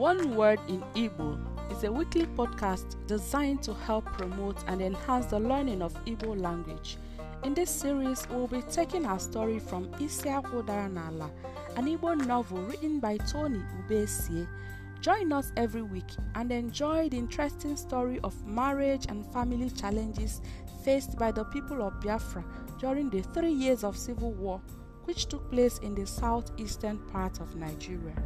One Word in Igbo is a weekly podcast designed to help promote and enhance the learning of Igbo language. In this series, we'll be taking our story from Isiakwu nala an Igbo novel written by Tony Ubesie. Join us every week and enjoy the interesting story of marriage and family challenges faced by the people of Biafra during the three years of civil war, which took place in the southeastern part of Nigeria.